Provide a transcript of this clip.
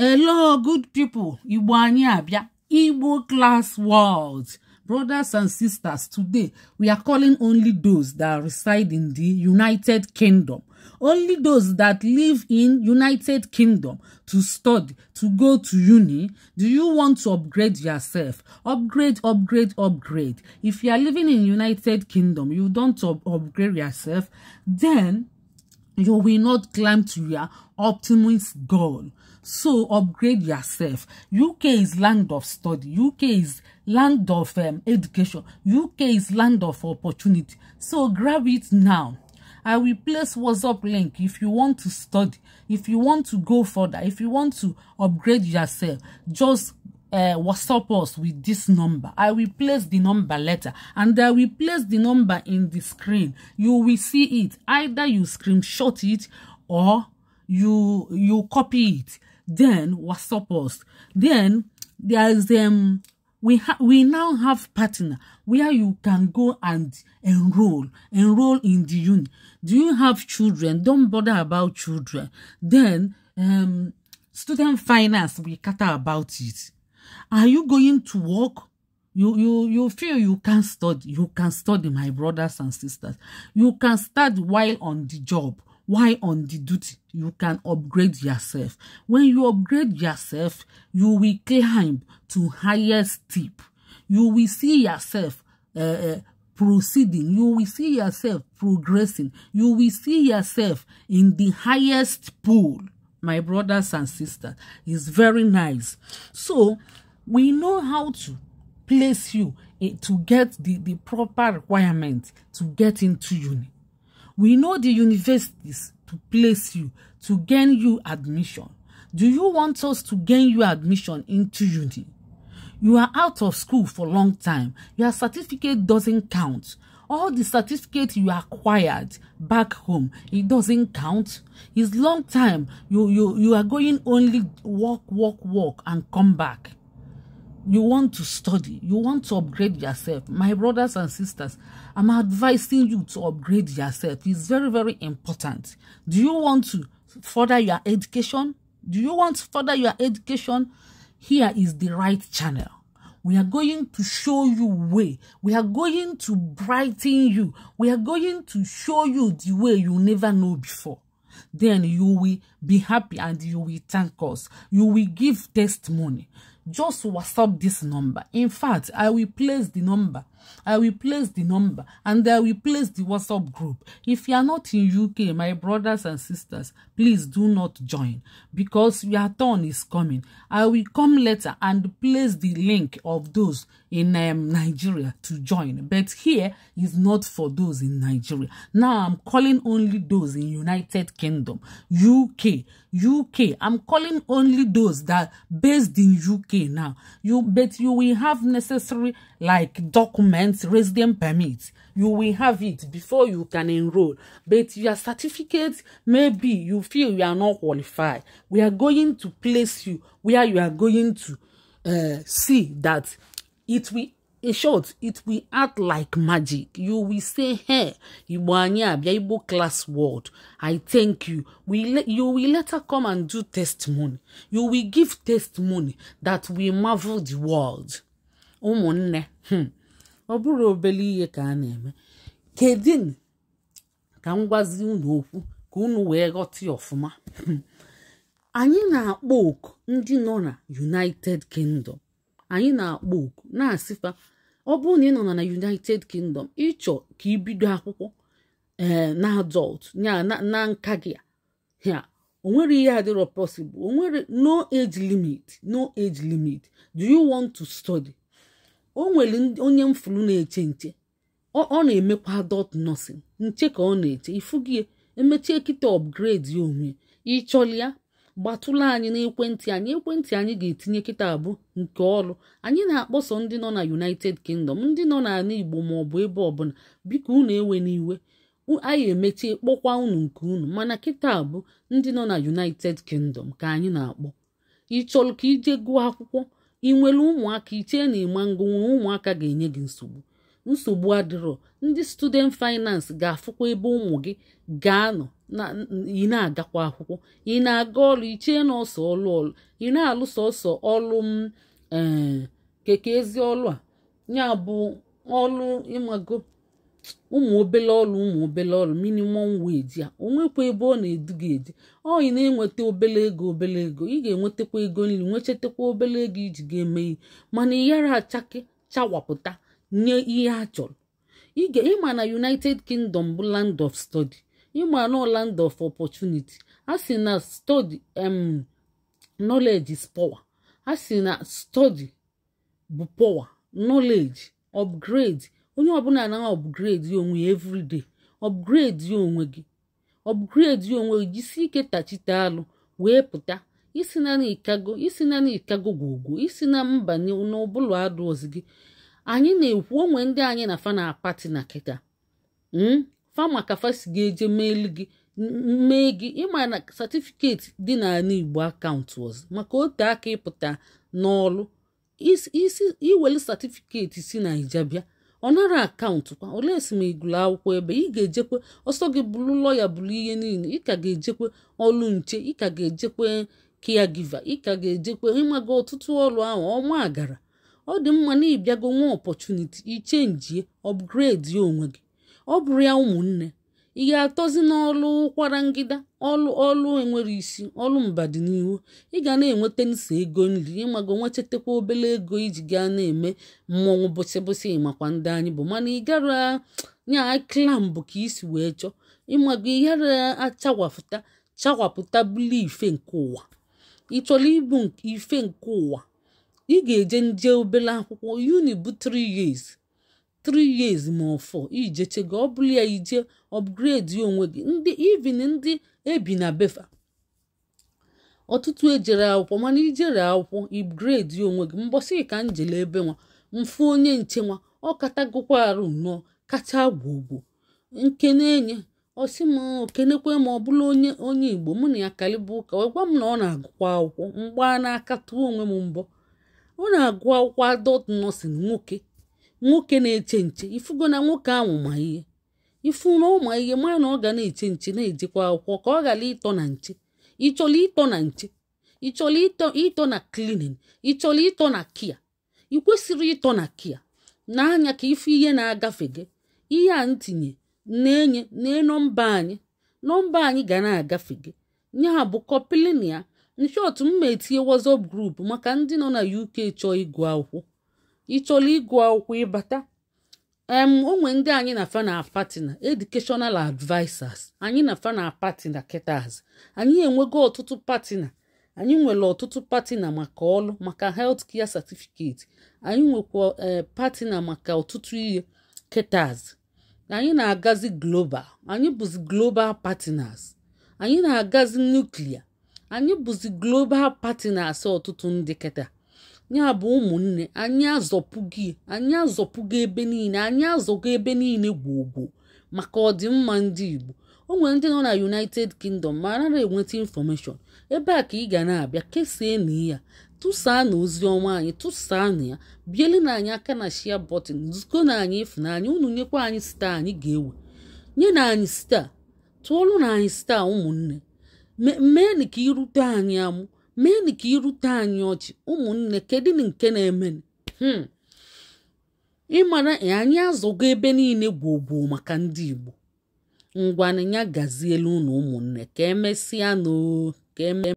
Hello, good people. Igbo anyị abịa. Igbo class world. Brothers and sisters, today we are calling only those that reside in the United Kingdom. Only those that live in United Kingdom to study, to go to uni. Do you want to upgrade yourself? Upgrade, upgrade, upgrade. If you are living in United Kingdom, you don't up upgrade yourself, then you will not climb to your optimist goal. So upgrade yourself. UK is land of study. UK is land of um, education. UK is land of opportunity. So grab it now. I will place WhatsApp link if you want to study, if you want to go further, if you want to upgrade yourself, just uh, WhatsApp us with this number. I will place the number letter and I will place the number in the screen. You will see it. Either you screenshot it or you you copy it then supposed. Then there's um we ha- we now have partner where you can go and enroll enroll in the uni. Do you have children? Don't bother about children. Then um student finance we cater about it. Are you going to work? you you you feel you can study you can study my brothers and sisters you can study while on the job why on the duty? You can upgrade yourself. When you upgrade yourself, you will climb to highest tip. You will see yourself uh, proceeding. You will see yourself progressing. You will see yourself in the highest pool. My brothers and sisters, it's very nice. So, we know how to place you eh, to get the, the proper requirement to get into uni. We know the universities to place you, to gain you admission. Do you want us to gain you admission into uni? You are out of school for a long time. Your certificate doesn't count. All the certificate you acquired back home, it doesn't count. It's long time. You, you, you are going only walk, walk, walk and come back you want to study, you want to upgrade yourself, my brothers and sisters, I'm advising you to upgrade yourself. It's very, very important. Do you want to further your education? Do you want to further your education? Here is the right channel. We are going to show you way. We are going to brighten you. We are going to show you the way you never know before. Then you will be happy and you will thank us. You will give testimony just whatsapp this number in fact i will place the number i will place the number and i will place the whatsapp group if you are not in uk my brothers and sisters please do not join because your turn is coming i will come later and place the link of those in um, Nigeria to join. But here is not for those in Nigeria. Now I'm calling only those in United Kingdom, UK, UK. I'm calling only those that based in UK now. You but you will have necessary like documents, resident permits. You will have it before you can enroll. But your certificate, maybe you feel you are not qualified. We are going to place you where you are going to uh, see that it will in short it will act like magic you will say hey igbo anyị abia igbo class world i thank you we you will later come and do testimony you will give testimony that will marvel the world ụmụnne hmm, ọ bụrụ obele ihe ka a na-eme kedin ka m gwazi unu okwu ka unu wee ghọta ọfụma hmm, anyị na-akpọ oku ndị nọ na united kingdom anyị na-akpọ oku na-asịfa ọ bụrụ na ị nọ na united kingdom ịchọ ka ibido akwụkwọ ee eh, na adult ya na nka gị ya o nwere ihe adịrọ possible o nwere no age limit no age limit do you want to study o nwere onye mfuru na-eche nche ọ na-emekwa adult nursing nche ka ọ na-eche ifu emechie kịta upgrade onwe ịchọlịa gbatụla anyị n'ekwentị anyị ekwentị anyị ga-etinye kịta abụ nke ọrụ anyị na-akpọsọ ndị nọ na united kingdom ndị nọ n'ala igbo ma ọ bụ ebe ọbụla biko unu ewe n'iwe anyị emechie kpọkwa unu nke unu mana kịta abụ ndị nọ na united kingdom ka anyị na-akpọ ị chọrọ ka ije gụọ akwụkwọ ị nwere ụmụaka ichee na ịma ngụnwe ụmụaka ga-enye gị nsogbu nsogbu adịrọ ndị student finance ga-afụkwa ebe ụmụ gị ga-anọ ị na-agakwa akwụkwọ ị na-aga ọrụ ichee na ọsọ ọlụ ọlụ ị na-alụso ọsọ ọlụ m eh, keke ezi ọlụ a ya bụ ọlụ ịmago ụmụ obele ọlụ ụmụ obele ọlụ minimum wage a onwekwa ebe ọ na-edu gị edu ọ ị na-enweta obele ego obele ego ị ga-enwetakwa ego nri nwechetakwa obele ego iji ga-eme ihe mana ị yara achake chawapụta nye ihe a chọrọ ịma na United Kingdom bụ land of study ịmana land of opportunity a sị na study em um, knowledge is power a sị na study bụ power knowledge upgrade onye ọbụla na upgrade onwe ya everyday upgrade ya onwe gị upgrade ya onwe gị jisi ike tachite alụ wee pụta isi na n'ikago isi na n'ikago gwogwo isi na mba n'ụbụlụ adụọzi gị anyị na-ekwu onwe ndị anyị na fana pati na kịta hmm? fama ka fa si ga-eje meelu gị mee gị ịma na satifiketi dị n'ala igbo akaụntụ ọzọ maka ote aka ịpụta n'ọlụ isi iwelu satifiketi si naija bịa ọ nara akaụntụ kwa ole esi ma igụlụ akwụkwọ ebe ị ga-ejekwe ọsọ gị bụrụ lọya bụrụ ihe niile ị ka ga-ejekwe ọlụ nche ị ka ga-ejekwe kia giva ị ka ga-ejekwe ịmaga ọtụtụ ọlụ ahụ ọnwa agara ọ dị mma na ịbịago nwa ọpọchuniti ichenjie ọpgredi onwe gị ọ bụrụ ya ụmụnne ị ga-atọzi n'ọlụ ụkwara ngịda ọlụ ọlụ enwere isi ọlụ mbadinihu ị ga na-enweta nso ego nri ịmago nwechetakwa obele ego iji gaa na-eme mmọnwụ bụsị bụsị makwa ndị anyị bụ mana ị gara nya klambụ ka isi wee chọọ ịmago ịghara achawapụta chawapụta bụlụ ife nke ụwa ị chọrọ ibu ife nke ụwa ị ga-eje nje obere akwụkwọ uni bụ 3 years 3 years ma ọ fọ ijechego ọ ya ije upgrade onwe gị ndị even ndị ebi na befa ọtụtụ ejere akwụkwọ mana ijere akwụkwọ upgrade onwe gị mbọsị ka njele ebe nwa mfu onye nche nwa ọ katagokwa arụ nnọọ kacha gwogwo nke na-enye ọsị m okenekwe ma ọ bụla onye onye igbo mụ na ya kalịba ụka wee gwa m na ọ na-agụkwa akwụkwọ mgba na-akatụ onwe m mbọ ọ na-agụ akwụkwọ adọt nọsin nwoke nwoke na-eche nche ifugo na nwoke ahụ ma ihe ifu na ụma ihe ma na ọ ga na-eche nche na-ejekwa akwụkwọ ka ọ ghara ịtọ na nche ịchọrọ ịtọ na nche ịchọrọ ịtọ na klinin ịchọrọ ịtọ na kia ị kwesịrị ịtọ na kia n'anya ka ifu ihe na-agafe gị ihe a ntinye na-enye nee nọmba anyị nọmba anyị ga na-agafe gị ya bụ kọpilinia nshọt mma etinye WhatsApp grupu maka ndị nọ na UK chọọ ịgụ akwụkwọ ịchọla ịgụ akwụkwọ ịbata em onwe ndị anyị na fana patina educational advisers anyị na fana patina ketas anyị enwego ọtụtụ patina anyị nwere ọtụtụ patina maka ọlụ maka health care certificate anyị nwekwa e, patina maka ọtụtụ ihe ketas anyị na-agazi global anyị bụzi global patinas anyị na-agazi nuklia anyị bụzi global patinas ọtụtụ ndị keta ya bụ ụmụnne anyị azọpụgo anyị azọpụgo ebe niile anyị azọgo ebe niile gwogwo maka ọdịmma ndị Igbo o nwere ndị nọ na United Kingdom ma anara enweta infọmeshọn ebe a ka ị ga na-abịa kesaa na ya tụsaa na ozi ọma anyị tụsaa na ya biele na anyị aka na shia bọtịn zụko na anyị anyị unu nyekwa anyị staa anyị ga-ewe nye na anyị staa tụọlụ na anyị staa ụmụnne mee na ka irute anyị amụ meenụ ka irute anyị ọchị ụmụnne kedu nke na-eme hmm. ịmara e, anyị azụgo ebe niile gbuo maka ndị Igbo ya gaziela unu ụmụnne ka emesịa n'o ka eme